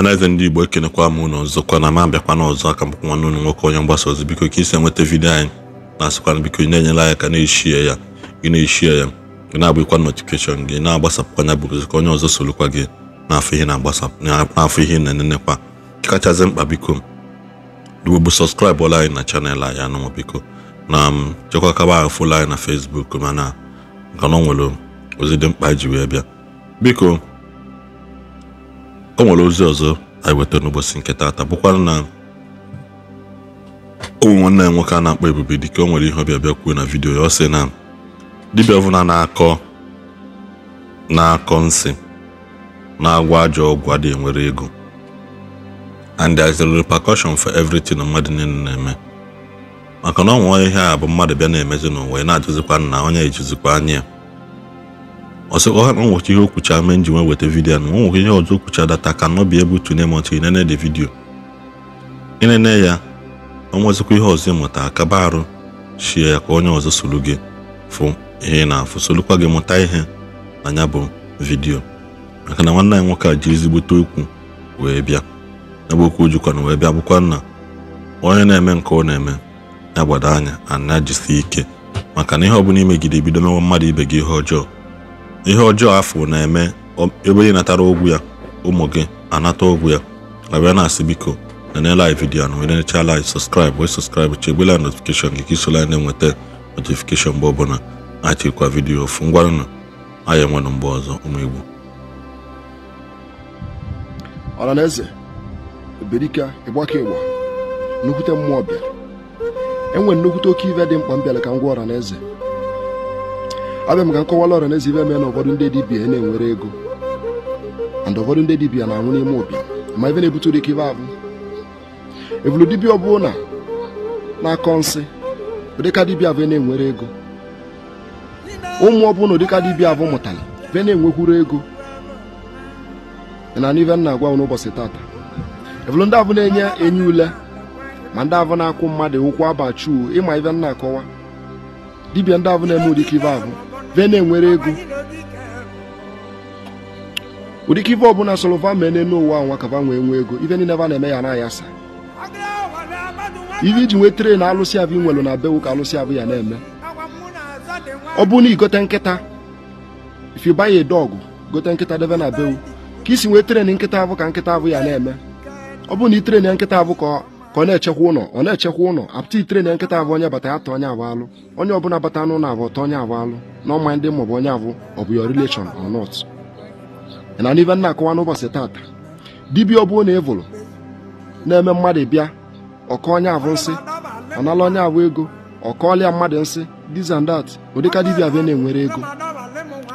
ọhaneze ndị igbo ekenekwa m ụlọ ọzọkwa na ma bịakwa n'ọzọ aka mkpụ nwanne ụnụ nwoke onye mgbasa ozi biko ka isi enweta vidiyo anyị na-asịkwana biko na-enyela ka na-eshie ya gị na-eshie ya gị na-agbakwa notifikeshọn gị na-agbasapụkwa ya bụrụzi ka onye ọzọ sorokwa gị n'afọ ihe na-agbasapụ ihe na-enenekwa kachasị mkpa biko bụ sọskraịbụ ọla anyị na chanel anyị anụnwa biko na um, chekwa kaba ahụ fụlụ anyị na fesbuk mana a na ọ nwere ozi dị mkpa ji wee bịa biko nwere ozi ọzọ anyị weta n'ụbọchị nke taata bụkwa na ụmụ nwanne ya nwoke a na-akpọ ebube dike o nwere ihe ọbịa bịa kwuo na vidiyo ya ọ sị na dibịa ọbụla na-akọ na-akọ nsị na-agwa ajọ ọgwụ adịghị nwere ego and there is a repercussion for everything mmadụ niile na-eme maka na ọ ọnwa ihe a bụ mmadụ bịa na-emezi n'ụwa ị na-ajụzikwa nna onye ejizikwa anya ọsọkọ ha na ihe okwucha mee nji nwe weta vidiyo na nwụchi ihe ọzọ okwucha data ka nọ bi ebu tune mọtụ inene de vidiyo inene ya ọnwezikwa ihe ọzọ ịmụta akaba arụ shie ya ka onye ọzọ solu gị fụ ihe na-afụ solukwa gị mụta ihe na ya bụ vidiyo maka na nwanne anyị nwoke a ji ezigbote okwu wee bịa ebe okwu jikwana wee bịa bụkwa nna onye na-eme nke ọ na-eme ya gbado anya ana jisi ike maka na ihe ọ bụla imegide bido mewa mmadụ ibe gị ihe ọjọọ ihe ọjọọ afọ na-eme ebe ị natara ụgwụ ya ụmụ gị anata ụgwụ ya abịa na-asị biko nenela anyị vidiyo na wenecha laik sọskraịbụ wee sọskraịbụ chegbela notifikeshọn gị ka isola na-enweta notifikeshọn mgbe ọbụla chekwa vidiyo ofu ngwanụ anyị enwenụ mgbe ọzọ ụmụ igbo ọhaneze eberika ịgbaka ịgba nnukwute mmụọ bịara enwere nnukwute oke ive dị mkpa m bịara ka m na eze. ọ bịa maka nkọwala ọra na-ezi ibe eme na ụfọdụ ndị dibia na-enwere ego and ụfọdụ ndị dibia na-anwụ n'ime ụbịa ma ebe na-ebute ụdị ka ibe abụ evulu dibia ọbụla na-akọ nsị ụdịka dibia abụ na-enwere ego ụmụ ọbụla ụdịka dibia abụ mụtara be na-enwekwuru ego na ibe m na-agwa n'ụbọchị tata evulu ndị abụ na-enye enye ule ma ndị abụ na-akwụ mmadụ ụkwụ abachuo ịma ibe m akọwa dibia ndị abụ na-eme ụdị ka ibe abụ ve na-enwere ego ụdịka ife ọbụla solova mee n'elu ụwa nwa kava nwee nwee ego ife niile va na-eme ya na ayasa ihe iji nwee na alụsị abụ nwelu na bewu ka alụsị abụ ya na-eme ọ bụ na igote nkịta if you dog gote nkịta debe na bewu ka isi nwee tren nkịta abụ ka nkịta abụ ya na-eme ọ bụ na i tren nkịta abụ ka ka ọ na-echekwa ụlọ ọ na-echekwa ụlọ apụta itere na nkịta abụ onye bata ya ta onye abụ alụ onye ọbụla bata n'ụlọ abụ ọta onye abụ alụ na ọma ndị maọbụ onye abụ ọ bụ your relation or na n'ibe nna akọwa n'ụbọchị tata dibịa ọ bụ na evụlụ na-eme mmadụ bịa ọkọ onye abụ nsị nala onye abụ ego ọkọọlịa mmadụ nsị this and that ụdịka dibịa bịa na-enwere ego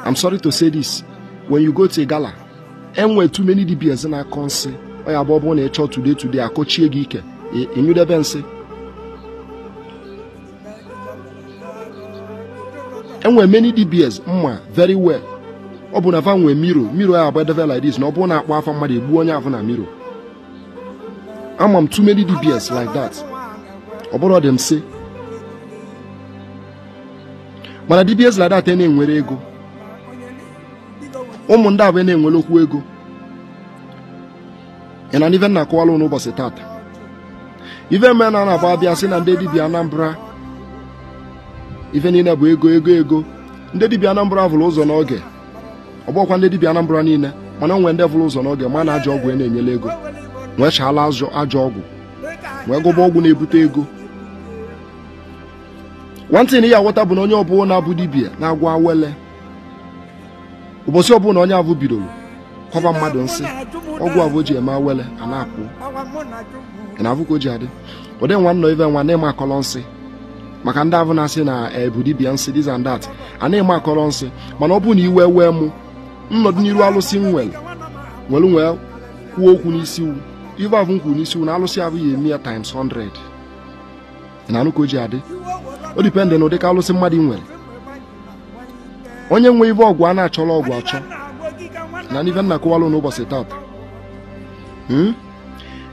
I'm sorry to say go to enwe too dibia dibias na-akọ nsị ọ ya bụ ọ bụrụ na ị chọọ today akọchie gị ike ịnyụdebe nsị enwe many dbs mma very well ọ bụ na fa nwee miro miro a agbadebe like this na ọ bụrụ na akpọ afa mmadụ egbuo onye afọ na miro ama m too many dbs like that ọ bụrụ dị m mana dbs like that e na-enwere ego ụmụ ndị abụọ e na-enwere okwu ego ị na n'ive na akụwala ụnụ ụbọchị tata ife mbe na anabụ abịa sị na ndị dibịa Anambra ife niile bụ ego ego ego ndị dibịa Anambra vụrụ ụzọ n'oge ọgbọkwa ndị dibịa Anambra niile mana onwe ndị vụrụ ụzọ n'oge ma na e ajọ ọgwụ a na-enyela ego wee chaala ajọ ọgwụ wee gụba ọgwụ na-ebute ego nwantịn ya bụ na onye ọbụla na-abụ dibịa na-agwa wele ụbọchị ọbụla onye abụ bidoro kwaba mmadụ nsị ọgwụ abụ o ji eme awele a na-apụ ị na-afụ ji adị ụdị nwa nọ ibe nwa na-eme akọrọ nsị maka ndị abụ na-asị na ebu dibịa nsị this and that a na-eme akọrọ nsị mana ọ bụrụ na iwe wee mụ nnọdụ n'iru alụsị m nwere nwere nwee kwuo okwu n'isi iwu ive avụ m kwuru n'isi iwu na alụsị abụghị eme ya times 100 ị na-anụ ka o ji adị o dipendị na ụdị alụsị mmadụ nwere onye nwee ive ọgwụ a na-achọrọ ọgwụ achọ na n'ife nna kụwalụ n'ụbọchị taata hmm?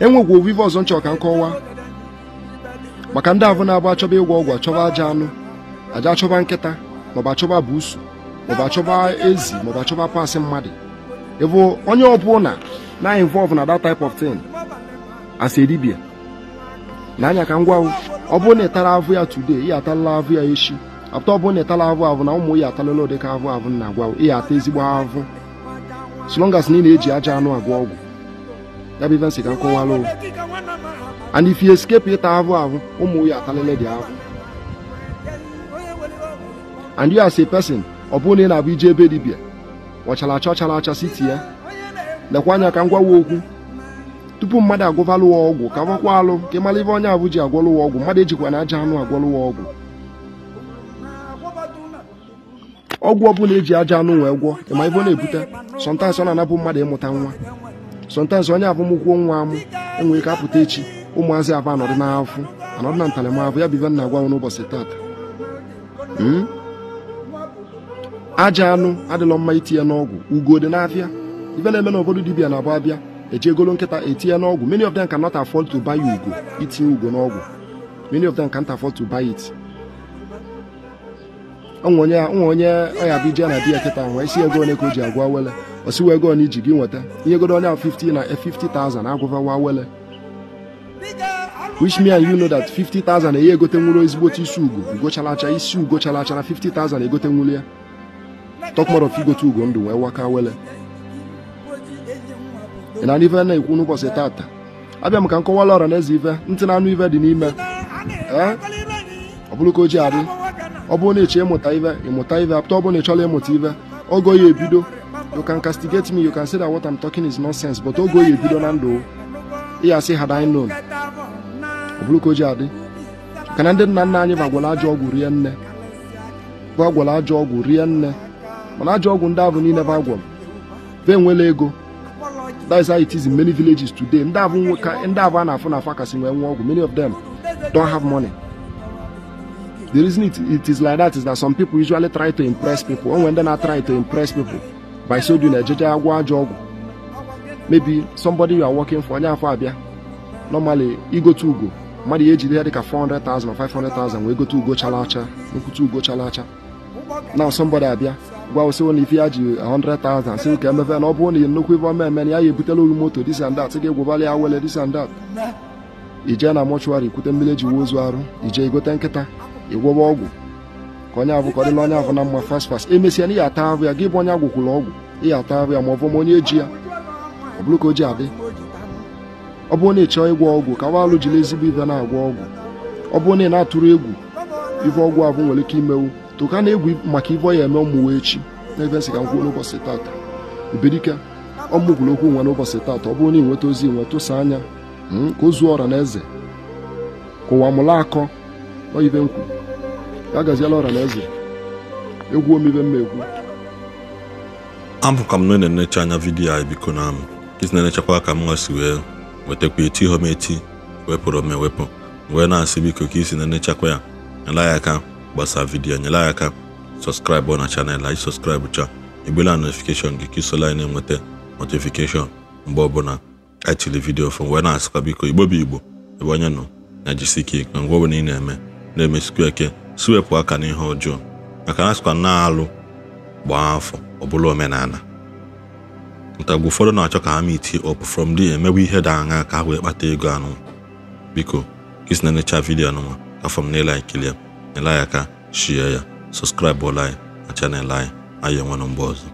enwegwu ovive ọzọ nchọ ka m kọwa maka ndị ahụ na-abụ achọba ịgwọ ọgwụ achọba aja anụ aja achọba nkịta maọbụ achọba buusu maọbụ achọba ezi maọbụ achọba pasị mmadụ ịbụ onye ọbụla na involve na that type of thing as a na anya ka ngwa ọ bụrụ na ịtara avụ ya today ihe atalala avụ ya echi apụta ọ bụrụ na ịtala avụ avụ na ụmụ ya atalala ụdị ka avụ avụ na agwa ya ata ezigbo avụ so as na ị na-eji aja anụ agwọ ọgwụ ya bụ ife nsị ka nkọwalụ and if you escape ịta ahụ ahụ ụmụ ya atalele dị ahụ and you as a person ọ bụrụ na ị na-abụ ije ebe dibia ọchara acha ọchara acha siti ya lekwa anya ka m gwawa okwu tupu mmadụ agwọvalụwa ọgwụ ka gwakwa alụ ka ị mara ife onye abụ ji agwọlụwa ọgwụ mmadụ ejikwa na aja anụ agwọlụwa ọgwụ ọgwụ ọbụla eji aja anụ wee gwọ ịma ife na-ebute sọntansị ọ na-anabụ mmadụ ịmụta nwa sọntansị onye abụmụkwuo nwa amụ enwere ike apụta echi ụmụazị abụ anọdụ n'afụ anọdụ na ntaramahụhụ ya bụ ibe na-agwa m n'ụbọchị hmm? aja anụ adịlọ mma itinye n'ọgwụ ugo dị n'afịa ife na-eme n'obodo dibia na abụ abịa ejegolo nkịta etinye n'ọgwụ many of them cannot afford to buy ugo itinye ugo n'ọgwụ many of them can't afford to buy it onwe onye ọya bụ ije na di ya kịta nwee si ego ole ka o ji agwa wele osi wee ego na iji gị nweta ihe godo onye ahụ 50 na 50,000 eh, agwụvawa wele me mean you know that 50,000 enye eh, egote nwụrụ otu isi ugo ugochalacha isi ugochalacha na 50,000 egote nwụrụ ya talk more of igote ugo ndụ wee waka wele na ndị ife na-ekwu n'ụbọchị tata abịa m ka m kọwala ọra na eze ife ntị na anụ ife dị n'ime ee eh? ọ bụrụ ka o ji adị ọ bụrụ na ị chọọ ịmụta ive ịmụta ive apụta ọ bụrụ na ị chọrọ ịmụta ive ogo ya ebido you can castigate me you can say that what I'm talking is nonsense but ogo ya ebido na ndụ ya sị had I known ọ bụrụ ka o ji adị ka na ndị nna nna anyị bụ agwala ajọ ọgwụ rie nne bụ agwala ajọ ọgwụ rie nne mana ajọ ọgwụ ndị abụ niile bụ agwọ be enwela ego that is how it is in many villages today ndị abụ a na-afụ na afa kasị nwee nwa ọgwụ many of them don't have money The reason it, it is like that is that some people usually try to impress people, and when they're not trying to impress people, by so doing a judge job, maybe somebody you are working for, normally you e go to go. mmadụ ya ejide ya dịka 400,000 or 500,000 wee gote ugo chalacha nkwute ugo chalacha now somebody abịa gwa ụsịwo na ife ya ji 100,000 si ka emebe na ọ bụrụ na nnukwu ife ọma eme na ya ya ebutela ohi moto this and that ga-egwobali ya wele this and that ije na mọchụarị kwute mmiri eji wuo ozu arụ ije gote nkịta ịgwọba ọgwụ ka onye abụkọrịla onye ahụ na mma fast fast emesịa na ihe ata ahụ ya gị bụ onye agwụkwụrụ ọgwụ ihe ata ahụ ya ma ọ bụ ma onye eji ya ọ bụrụ ka o ji adị ọ bụrụ na ị chọọ ịgwọ ọgwụ ka walụ jiri ezigbo ibe na-agwọ ọgwụ ọ bụrụ na ị na-atụrụ egwu ife ọgwụ ahụ nwere ike imewu tụka na egwu maka ife ọ ya eme ọmụwa echi na ebe ka m n'ụbọchị tata ebedike ọmụgwụrụ okwu nwa n'ụbọchị tata ọ na nweta ozi nwe tụsa anya hmm, ka ọra na eze ka ụwa mụla akọ nọ ibe agaziela ọra na eze egwu omibe mma egwu abụkwa m na na-enecha anya vidiyo anyị biko na amụ isi na-enechakwa ka m nwasi wee wetakwa eti ha m wepụrụ m ewepụ wee na-asị biko ka isi na-enechakwa ya nyela ya aka gbasa vidiyo nyela ya aka sọskraịbụ na chanel anyị sọskraịbụ cha egbela notifikeshọn gị ka isola anyị na-enweta notifikeshọn mgbe ọbụla anyị e tiri vidiyo fụ wee na-asịkwa biko igbo igbo ebe onye nọ na jisike na ngwa ọbụla ị na-eme na-emesikwa eke si aka n'ihe ọjọọ maka na asịkwa na-alụ gbaa afọ ọ bụla omenala ntagwu ụfọdụ na-achọ ka ha miti up from d emewe ihe dị aṅa ka ha wee kpata ego anụ biko gị si na-enecha vidiyo anụnwa afọ m na-ele ya n'ela ya aka shie ya sọskraịbụ ọla anyị na chanel anyị anyị enwe na mgbe ọzọ